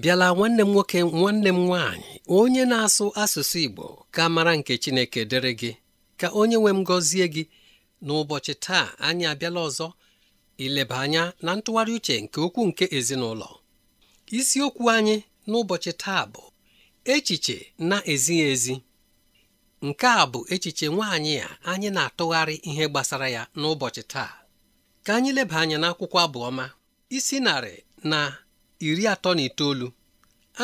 bịala nwanne m nwoke nwanne m nwaanyị onye na-asụ asụsụ Igbo ka mara nke Chineke dịrị gị ka onye nwe m gọzie gị n'ụbọchị taa anyị abịala ọzọ ileba anya na ntụgharị uche nke okwu nke ezinụlọ isiokwu anyị n'ụbọchị taa bụ echiche na-ezighị ezi nke a bụ echiche nwaanyị a anyị na-atụgharị ihe gbasara ya n'ụbọchị taa ka anyị leba anya n'akwụkwọ abụọma isi narị na iri atọ na itoolu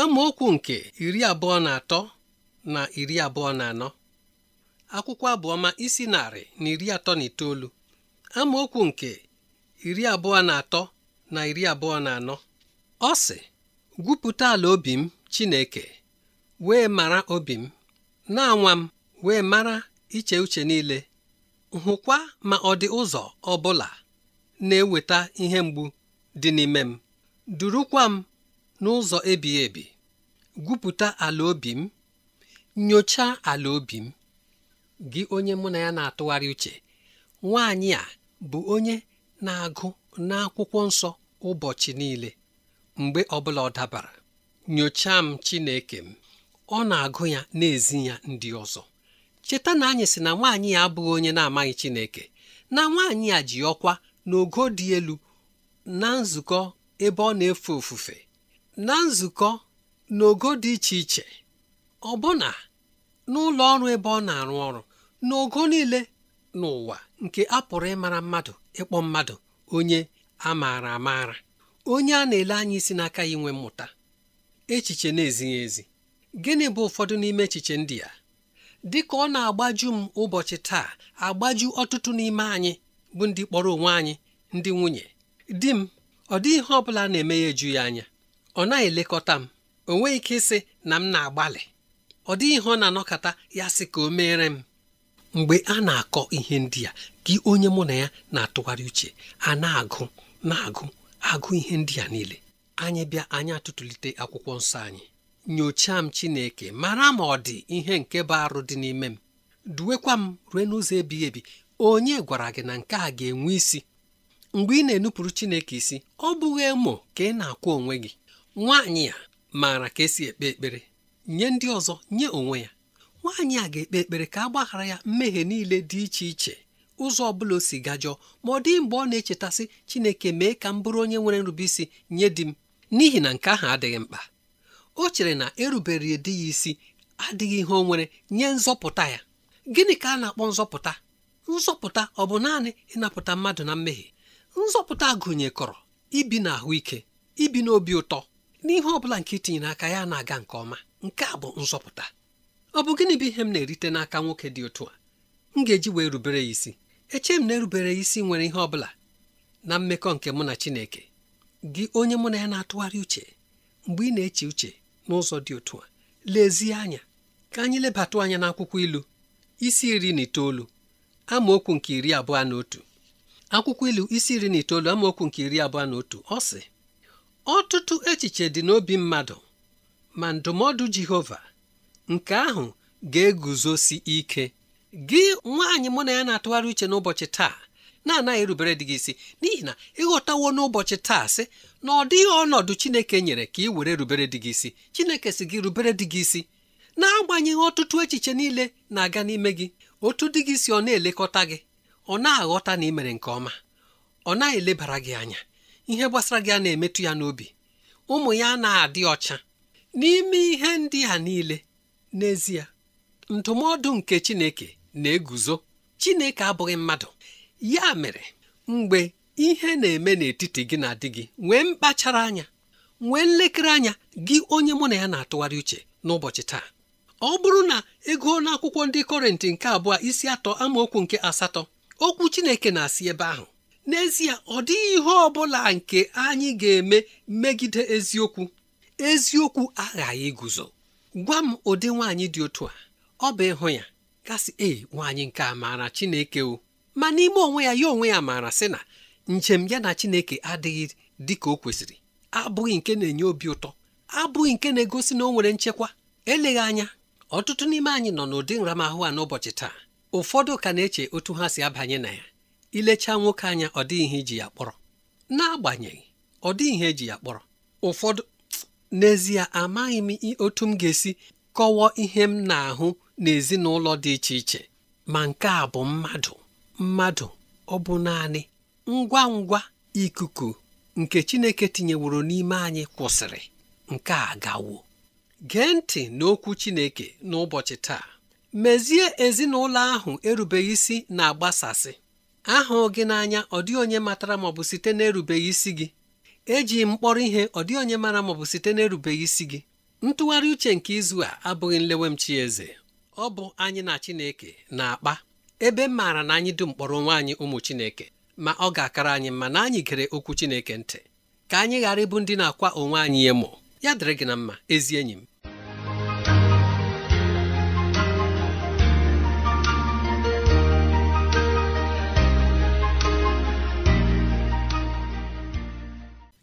amaokwu nke iri abụọ na atọ na iri abụọ na anọ akwụkwọ abụọma isi narị na iri atọ na itoolu amaokwu nke iri abụọ na atọ na iri abụọ na anọ ọ sị gwupụta ala obi m Chineke wee mara obi m na-anwa m wee mara iche uche niile hụkwa ma ọ dị ụzọ ọ na-eweta ihe mgbu dị n'ime m durukwa m n'ụzọ ebighị ebi gwupụta ala obi m nyochaa ala obi m gị onye mụ na ya na-atụgharị uche nwaanyị a bụ onye na-agụ n'akwụkwọ nsọ ụbọchị niile mgbe ọbụla ọ dabara nyochaa m Chineke m ọ na-agụ ya na ya ndị ọzọ cheta na anyị sị na nwaanyị ya abụghị onye na-amaghị Chineke na nwaanyị a ji ọkwa n'ogo dị elu na nzukọ ebe ọ na-efe ofufe na nzukọ n'ogo dị iche iche ọbụna n'ụlọ ọrụ ebe ọ na-arụ ọrụ n'ogo niile n'ụwa nke a pụrụ ịmara mmadụ ịkpọ mmadụ onye a maara amaara onye a na-ele anya isi n'aka ya inwe mmụta echiche na-ezighị ezi gịnị bụ ụfọdụ n'ime echiche ndị a dị ka ọ na-agbaju m ụbọchị taa agbaju ọtụtụ n'ime anyị bụ ndị kpọrọ onwe anyị ndị nwunye di m ọ dị ihe ọ bụla na-eme ya eju ya anya ọ naghị elekọta m o nweghị ike ịsị na m na-agbalị ọ dịghị ihe ọ na-anọkọta ya sị ka o meere m mgbe a na-akọ ihe ndị a gị onye mụ na ya na-atụgharị uche a na-agụ na-agụ agụ ihe ndị a niile anyị bịa anyị atụtụlite akwụkwọ nsọ anyị nyochaa m Chineke mara ma ọ dị ihe nke bụ arụ dị n'ime m duwekwa m rue n'ụzọ ebighị ebi onye gwara gị na nke a ga-enwe isi mgbe ị na-enupụrụ Chineke isi ọ bụghị emo ka ị na-akwụ onwe gị nwaanyị a maara ka esi ekpe ekpere nye ndị ọzọ nye onwe ya nwaanyị a ga-ekpe ekpere ka a gbaghara ya mmehie niile dị iche iche ụzọ ọbụla o si gajọọ ma ọ dịghị mgbe ọ na-echetasị Chineke mee ka m bụrụ onye nwere nrubeisi nye di m n'ihi na nke ahụ adịghị mkpa o chere na erubere di ya isi adịghị ihe o nwere nye nzọpụta ya gịnị ka a na-akpọ nzọpụta nzọpụta ọ bụ naanị ịnapụta mmadụ na mmehie nzọpụta gụnyekọrọ ibi na ahụike ibi n'obi ụtọ n'ihe ọ bụla nke itinyere aka ya na-aga nke ọma nke a bụ nzọpụta ọ bụ gịnị bụ ihe m na-erite n'aka nwoke dị otu a m ga-eji wee rubere ya isi eche m na-erubere ya isi nwere ihe ọ bụla na mmekọ nke mụ na Chineke gị onye mụ na ya na-atụgharị uche mgbe ị na-eche uche n'ụzọ dị otu a lezie anya ka anyị lebatụ anya n'akwụkwọ ilu isi iri na itoolu amaokwu nke iri abụọ na otu akwụkwọ ilu isi iri na itoolu amaokwu nke iri abụọ na otu ọ sị ọtụtụ echiche dị n'obi mmadụ ma ndụmọdụ Jehova nke ahụ ga-eguzosi ike gị nwaanyị mụ na ya na-atụgharị uche n'ụbọchị taa na-anaghị erubere dị gị isi n'ihi na ịghọtawo n'ụbọchị taa sị na ọ dịghị ọnọdụ Chineke nyere ka ị were rubere dị gị isi Chineke si gị rubere dị gị isi na-agbanyeghị ọtụtụ echiche niile na-aga n'ime gị otu dị gị si ọ na-elekọta gị ọ na-aghọta na ị mere nke ọma ọ na elebara gị anya ihe gbasara gị a na-emetụ ya n'obi ụmụ ya na-adị ọcha n'ime ihe ndị a niile n'ezie ndụmọdụ nke Chineke na-eguzo Chineke abụghị mmadụ ya mere mgbe ihe na-eme n'etiti gị na di gị nwee mkpachara anya nwee nlekere anya gị onye mụ na ya na-atụgharị uche n'ụbọchị taa ọ bụrụ na ego n'akwụkwọ ndị kọrenti nke abụọ isi atọ amaokwu nke asatọ okwu chineke na-asị ebe ahụ n'ezie ọ dịghị ihe ọ bụla nke anyị ga-eme megide eziokwu eziokwu aghaghị guzo gwa m ụdị nwaanyị dị otu a ọ bụ ịhụ ya gasị ee nwaanyị nke a maara chineke o ma n'ime onwe ya ya onwe ya maara sị na njem ya na chineke adịghị dị ka o kwesịrị abụghị nke na-enye obi ụtọ abụghị nke na-egosi na o nwere nchekwa eleghị anya ọtụtụ n'ime anyị nọ n'ụdị nramahụ a n'ụbọchị taa ụfọdụ ka na-eche otu ha si abanye na ya ilechaa nwoke anya ọ dịghị ihe iji ya kpọrọ n'agbanyeghị ọ dịghị ihe eji ya kpọrọ ụfọdụ n'ezie amaghị m otu m ga-esi kọwaa ihe m na-ahụ n'ezinụlọ dị iche iche ma nke a bụ mmadụ mmadụ ọ bụ naanị ngwa ngwa ikuku nke Chineke tinyeworo n'ime anyị kwụsịrị nke a gawo gee ntị n'okwu Chineke n'ụbọchị taa mezie ezinụlọ ahụ erubeghị isi na-agbasasị ahụ gị n'anya ọ dịghị onye matara maọbụ site na-erubeghị isi gị eji mkpọrọ ihe ọ dị onye mara maọbụ site na-erubeghị isi gị ntụgharị uche nke izu a abụghị nlewemchi eze ọ bụ anyị na Chineke na-akpa ebe maara na anyị dum mkpọrọ onwe anyị ụmụ Chineke ma ọ ga-akara anyị mma na anyị gere okwu Chineke ntị ka anyị ghara ịbụ ndị na-akwa onwe anyị emo ya dịrị gị na mma ezi enyi m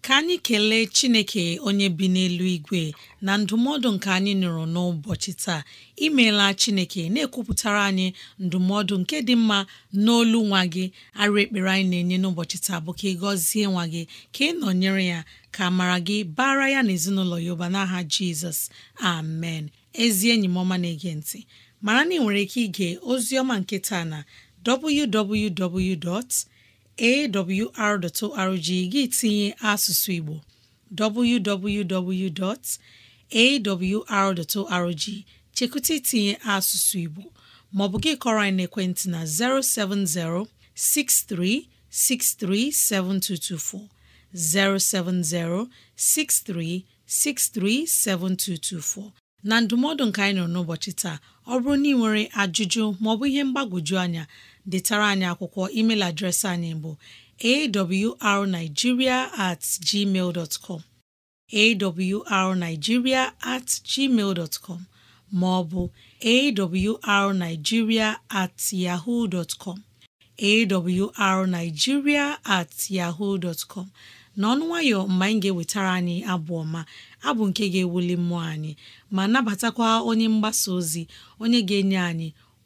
ka anyị kelee chineke onye bi n'elu igwe na ndụmọdụ nke anyị nụrụ n'ụbọchị taa imeela chineke na-ekwupụtara anyị ndụmọdụ nke dị mma n'olu nwa gị arụ ekpere anyị na-enye n'ụbọchị taa bụ ka ị gọzie nwa gị ka ị nọnyere ya ka mara gị bara ya na ezinụlọ ya ụba n'aha jizọs amen ezi enyi m ọma na-ege ntị mara na ị nwere ike ige ozi ọma nke taa na www. awr.org gị tinye asụsụ Igbo www.awr.org chekụta itinye asụsụ Igbo maọbụ gị kọrọ anyị n'ekwentị na 070 6363 7224 070 6363 7224 na ndụmọdụ nke anyị nọ n'ụbọchị taa ọ bụrụ na ị nwere ajụjụ maọbụ ihe mgbagwoju anya detara anyị akwụkwọ email adreesị anyị bụ awrnigeria at gmail dot com awrnigeria at gmail com ma ọ bụ awrnigeria at yahoo dot com awrnigeria at yahoo dot com n'ọnụ nwayọ mgbe anyị ga-ewetara anyị abụ ọma abụ nke ga-ewuli mmụọ anyị ma nabatakwa onye mgbasa ozi onye ga-enye anyị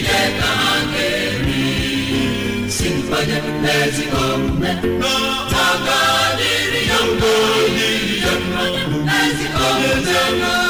Chineke ha ga-eri si mkpanye n'ezigbo omume ha ga-adịrị ya mma n'ezigbo omume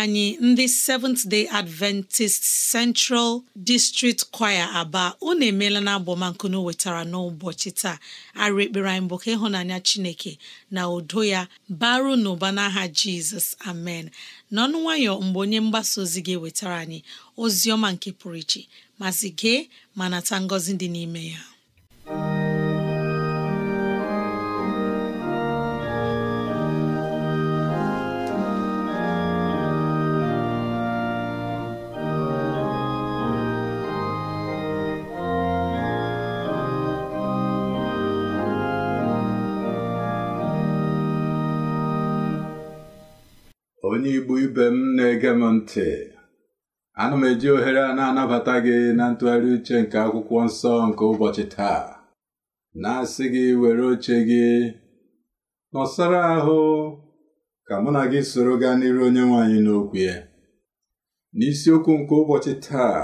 anyị ndị Seventh Day Adventist Central District Choir Aba unu emeela na abọmankunu wetara n'ụbọchị taa arị ekpere anyị bụ ka ịhụnanya Chineke na udo ya baru n'ụba n'aha Jizọs amen n'ọnụ nwayọ mgbe onye mgbasa ozi gị wetara anyị ozi ọma nke pụrụ iche mazị gee ma nata ngọzi dị n'ime ya onye igbo ibe m na-ege m ntị ana m eji ohere a na-anabata gị na ntụgharị uche nke akwụkwọ nsọ nke ụbọchị taa na-asị gị were oche gị nọsara ahụ ka mụ na gị soro gaa n'iru onye nwaanyị n'okwu ya n'isiokwu nke ụbọchị taa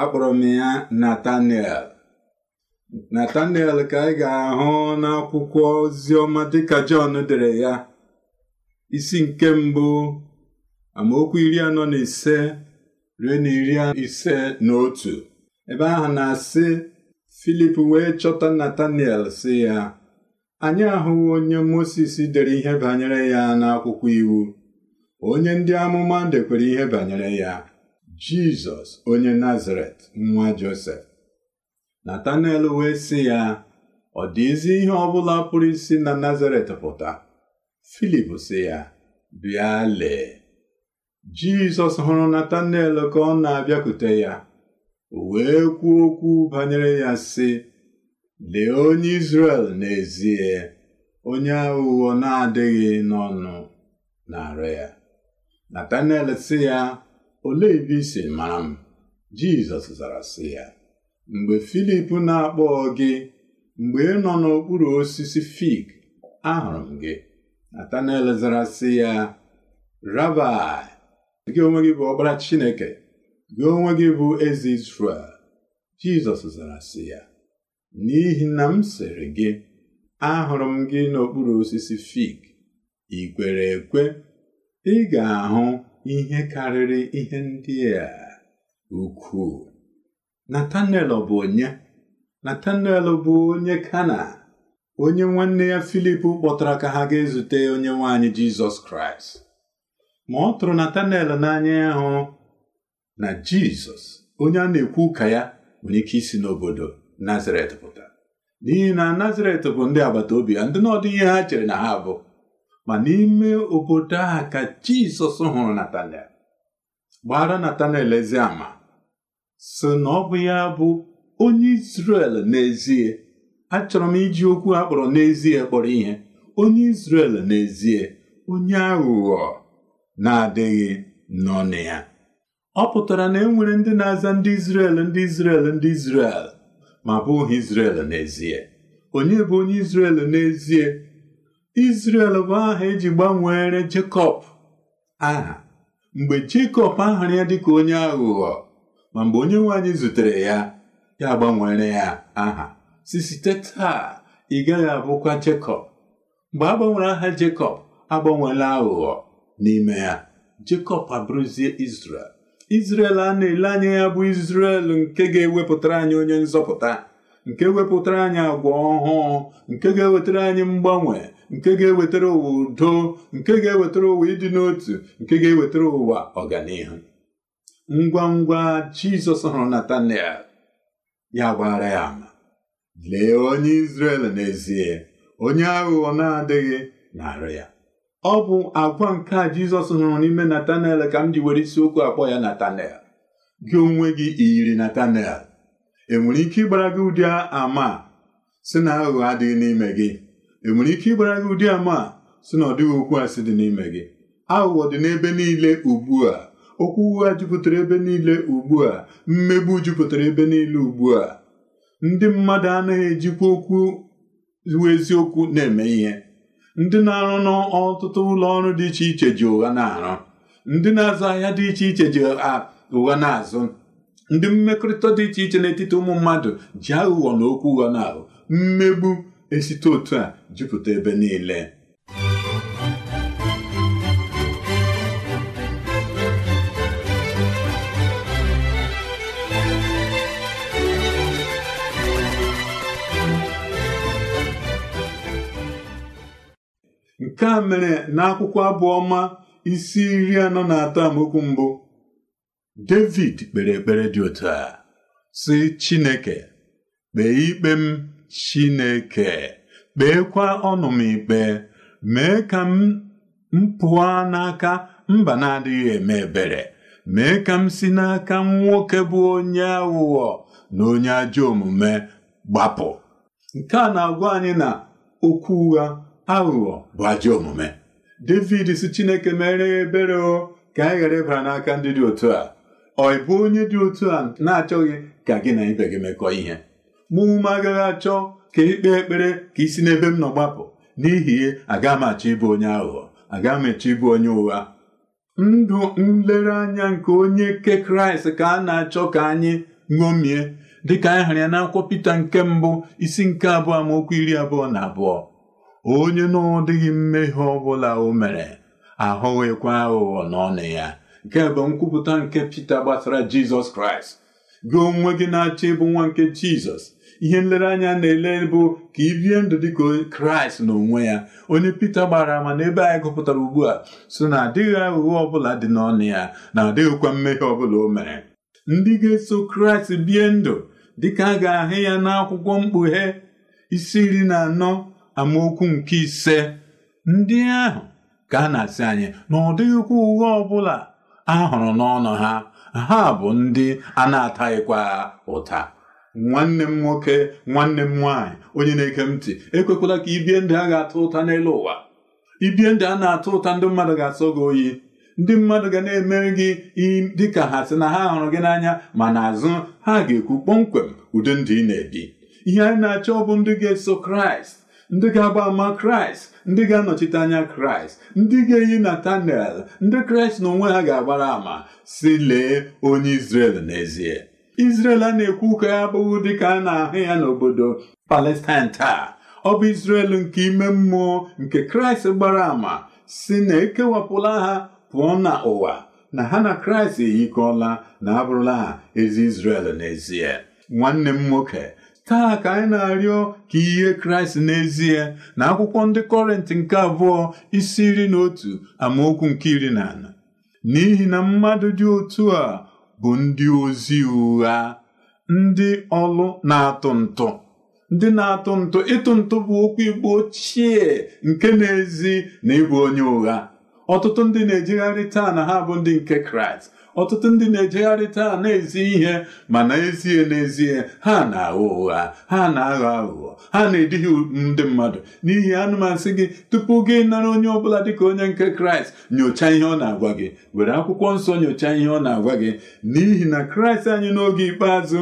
akpọrọ m ya Nataniel Nataniel ka anyị ga-ahụ n'akwụkwọ oziọma dịka Jọn dere ya isi nke mbụ amaokwu iri anọ na ise ruo na iri ise na otu ebe ahụ na-asị Filip wee chọta natanel si ya anyị ahụghị onye Mosis dere ihe banyere ya n'akwụkwọ iwu onye ndị amụma dekwere ihe banyere ya Jizọs onye Nazaret nwa Josef Natanel wee sị ya ọ dịzi ihe ọ bụla pụrụ isi na Nazaret pụta Filip si ya bịa lee Jizọs hụrụ Natanel ka ọ na-abịakwute ya o wee kwuo okwu banyere ya si lee onye Izrel n'ezie onye aghụghọ na-adịghị n'ọnụ na-arụ ya Natanel si ya olee ebe i si mara m Jizọs zara si ya mgbe Filip na-akpọ gị mgbe ị nọ n'okpuru osisi fig ahụrụ m gị Natanel zara si ya Rabai gị onwe gị bụ ọkpara Chineke gị onwe gị bụ eze Izrel Jizọs zara si ya n'ihi na m sịrị gị ahụrụ m gị n'okpuru osisi fig ị kwere ekwe ị ga-ahụ ihe karịrị ihe ndị a ukwuu Natanel bụ onye Natanel bụ onye Kana onye nwanne ya Filip kpọtara ka ha ga-ezute onye nwaanyị Jizọs Kraịst ma ọ tụrụ Natanel n'anya ya na Jizọs onye a na-ekwu ụka ya nwere ike isi n'obodo Nazaret pụta n'ihi na Nazaret bụ ndị agbata obi ya ndị n'ọdụ ihe ha chere na ha bụ ma n'ime obodo a ka Jizọs hụrụ Natanel gbara Natanel ezi ama na ọ bụ ya bụ onye Izrel n'ezie achọrọ m iji okwu a kpọrọ n'ezie kpọrọ ihe onye Izrel n'ezie onye aghụghọ na-adịghị na ya ọ pụtara na e nwere ndị na-aza ndị Izrel ndị Izrel ndị Izrel ma bụghị Izrel n'ezie onye bụ onye Izrel n'ezie Izrel bụ aha eji gbanwere Jekọb aha mgbe Jekọb ahụrụ ya dịka onye aghụghọ ma mgbe onye nwanyị zutere ya ya gbanwere ya aha si site taa ị gaghị abụkwa Jekọb mgbe a gbanwere aha Jekọb agbanweela aghụghọ n'ime ya Jekọb abụrụzie Izrel Izrel a na-ele anya ya bụ Izrel nke ga-ewepụtara anyị onye nzọpụta nke wepụtara anyị agwa ọhụụ nke ga-ewetara anyị mgbanwe nke ga-ewetara ụwa udo nke ga-ewetara ụwa ịdị n'otu nke ga-ewetara ụwa ọganihu ngwa ngwa Jizọs hụrụ Natanel ya gbaghara ya ama lee onye Izrel n'ezie onye aghụghọ na-adịghị na ya ọ bụ agwa nke a Jizọs hụrụ n'ime Natanel ka m ji were isiokwu akpọ ya Natanel gị onwe gị iyiri Natanel enwere ike ịgbara gị ụdị ama si na aghụghọ adịghị n'ime gị enwere ike ịgbara gị ụdị ama si na ọ dịghị okwu asị dị n'ime gị aghụghọ dị n'ebe niile ugbu a okwu ụgha jupụtara ebe niile ugbu a mmegbu jupụtara ebe niile ugbu a ndị mmadụ anaghị ejikwa okwu iwu eziokwu na-eme ihe ndị na-arụ n'ọtụtụ ụlọ ọrụ dị iche iche ji ụgha na-arụ ndị na-azụ ahịa dị iche iche ji ụgha na-azụ ndị mmekọrịta dị iche iche n'etiti ụmụ mmadụ ji aghụghọ na okwu ụgha na-ahụ mmegbu esite otu a jupụta ebe niile nke a mere n'akwụkwọ abụọma isi iri anọ na atọ amaokwu mbụ David kpere ekpere dị otu a sị Chineke kpee ikpe m Chineke kpeekwa ọnụ m ikpe mee ka m mpụa n'aka mba na-adịghị eme ebere mee ka m si n'aka nwoke bụ onye aghụghọ na onye ajọ omume gbapụ nke a na-agwa anyị na okwu ụgha aghụghọ bụ ajọ omume David si Chineke mere ebere o ka anyị ghara ịbara n'aka ndị dị otu a ọ bụ onye dị otu a na-achọghị ka gị na ibe gị mekọ ihe mụ ume agaghị achọ ka ikpe ekpere ka isi n'ebe m nọ gbapụ n'ihi ihe, aga m achọ ịbụ onye aghụghọ aga m achọ ịbụ onye ụgha ndụ nlereanya nke onye ke kraịst ka a na-achọ ka anyị ṅomie dịka anyị hụrụ ya n'akwụkwọ pita nke mbụ isi nke abụọ amaokwu iri abụọ na abụọ onye na ọ mmehie ọbụla o mere ahụghịkwa aghụghọ n'ọnụ ya nke bụ nkwupụta nke Pita gbasara Jizọs Kraịst gị onwe gị na-achọ ịbụ nwa nke Jizọs ihe nlereanya na-ele bụ ka ibie bie ndụ dị ka kraịst n'onwe ya onye pita gbara ama ebe anyị gụpụtara ugbu a so na adịghị aghụghọ ọbụla dị n'ọnụ ya na adịghịkwa mmehie ọbụla o mere ndị ga-eso kraịst bie ndụ dịka a ga-ahụ ya n'akwụkwọ mkpughe isi iri na anọ amaokwu nke ise ndị ahụ ka a na-asị anyị na ụdịkwa ụgha ọbụla a hụrụ n'ọnụ ha ha bụ ndị a na-ataghịkwa ụta nwanne m nwoke nwanne m nwaanyị onye na-eke m ntị ekwekwala ka ibie ndị a ga-atụ ụta n'elu ụwa ibie ndị a na-atụ ụta ndị mmadụ ga-asọ gị oyi ndị mmadụ ga na eme gị dịka ha sị na ha hụrụ gị n'anya ma n'azụ ha ga-ekwu kpọmkwem ụdị ndị ị na-ebi ihe anyị na-achọ ọ bụ ndị ga-eso kraịst ndị ga-agba ama kraịst ndị ga-anọchite anya kraịst ndị ga-eyi natanel ndị kraịst na onwe ha ga-agbara ama si lee onye izrel n'ezie izrel a na-ekwu ka ya abụghị dịka a na-ahụ ya n'obodo palestine taa ọ bụ izrel nke ime mmụọ nke kraịst gbara ama si na ekewapụla ha pụọ na ụwa na ha na kraịst eyikọla na abụrụla ha ezi izrel n'ezie nwanne m nwoke taa ka anyị na-arịọ ka ihe kraịst n'ezie na akwụkwọ ndị kọrenti nke abụọ isi iri na otu amaokwu nke iri na anọ n'ihi na mmadụ dị otu a bụ ndị ozi ụgha ndị ọlụ na-atụ ntụ ndị na-atụ ntụ ịtụ ntụ bụ okwu igbo ochie nke na-ezi na ịbụ onye ụgha ọtụtụ ndị na-ejegharị taa na ha bụ ndị nke kraịst ọtụtụ ndị na-ejegharị taa na-ezi ihe mana ezie n'ezie ha na aghọ ụgha ha na-aghọ aghụghọ ha na-edighị ndị mmadụ n'ihi anụmasị gị tupu gị nara onye ọbụla dịka onye nke kraịst nyochaa ihe ọ na-agwa gị were akwụkwọ nsọ nyochaa ihe ọ na-agwa gị n'ihi na kraịst anyị n'oge ikpeazụ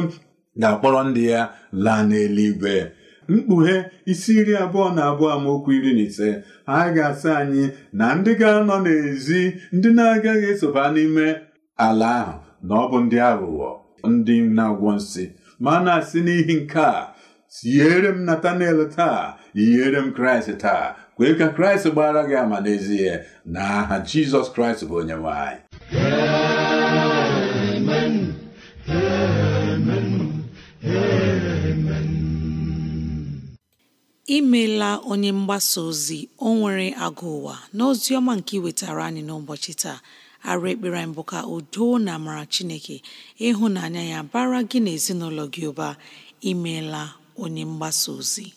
ga-akpọrọ ndị ya laa n'eluigwe mkpughe isi iri abụọ na abụọ amaokwu iri na ise ha ga-asị anyị na ndị ga-anọ n'ezi ndị na-agaghị esoba n'ime ala ahụ na ọ bụ ndị aghụghọ ndị na-agwọ nsị ma na-asị n'ihi nke a siere m Natanel taa yiere m kraịst taa kwee ka kraịst gbara gị ama n'ezie na aha jizọs kraịst bụ onye nwanyị anyị imeela onye mgbasa ozi o nwere agụ ụwa n'ozi ọma nke iwetara anyị n'ụbọchị taa arụ ekpere anyị bụ ka udo na amara chineke ịhụnanya ya bara gị na ezinụlọ gị ụba imeela onye mgbasa ozi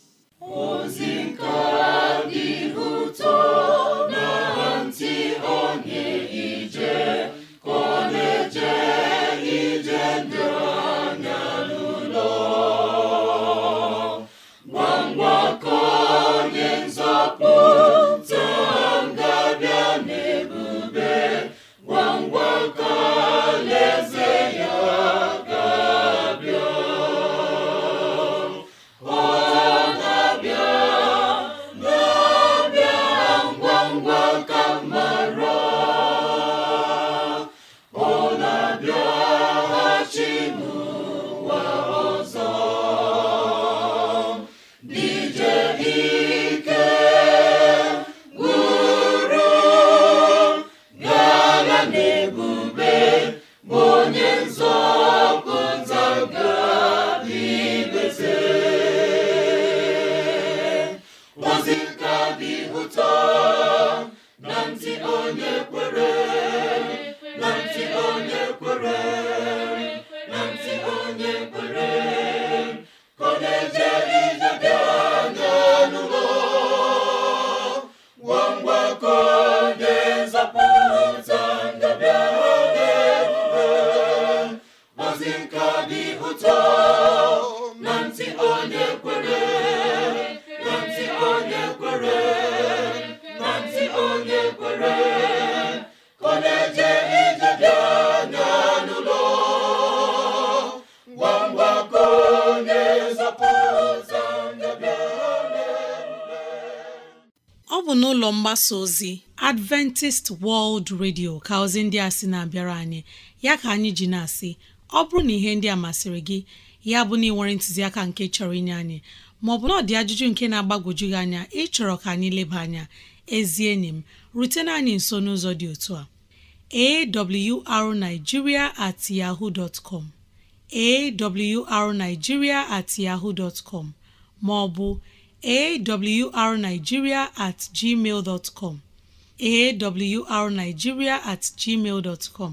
ọ bụ n'ụlọ mgbasa ozi Adventist World Radio ka ozi ndị a sị na-abịara anyị ya ka anyị ji na-asị ọ bụrụ na ihe ndị a masịrị gị ya bụ na ị ntụziaka nke chọrọ inye anyị maọbụ na ọ dị ajụjụ nke na-agbagwoju gị anya ịchọrọ ka anyị leba anya ezi enyi m rutena anyị nso n'ụzọ dị otu a awrnigeria at yahoo com awrnigeria at yahoo com maọbụ awrnigeria at gmail com awrnigeria at gmail com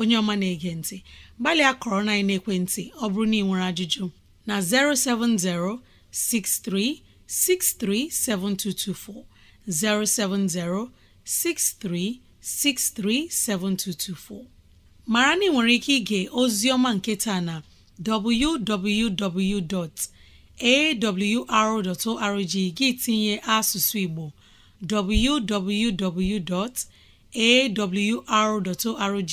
onye ọma na-ege ntị gbalịa kọrọ na ekwentị ọ bụrụ na ị nwere ajụjụ na 070 63 7224 070 63 7224 maara na ị nwere ike ige ozi ọma nke taa na www.awr.org gị tinye asụsụ Igbo www.awr.org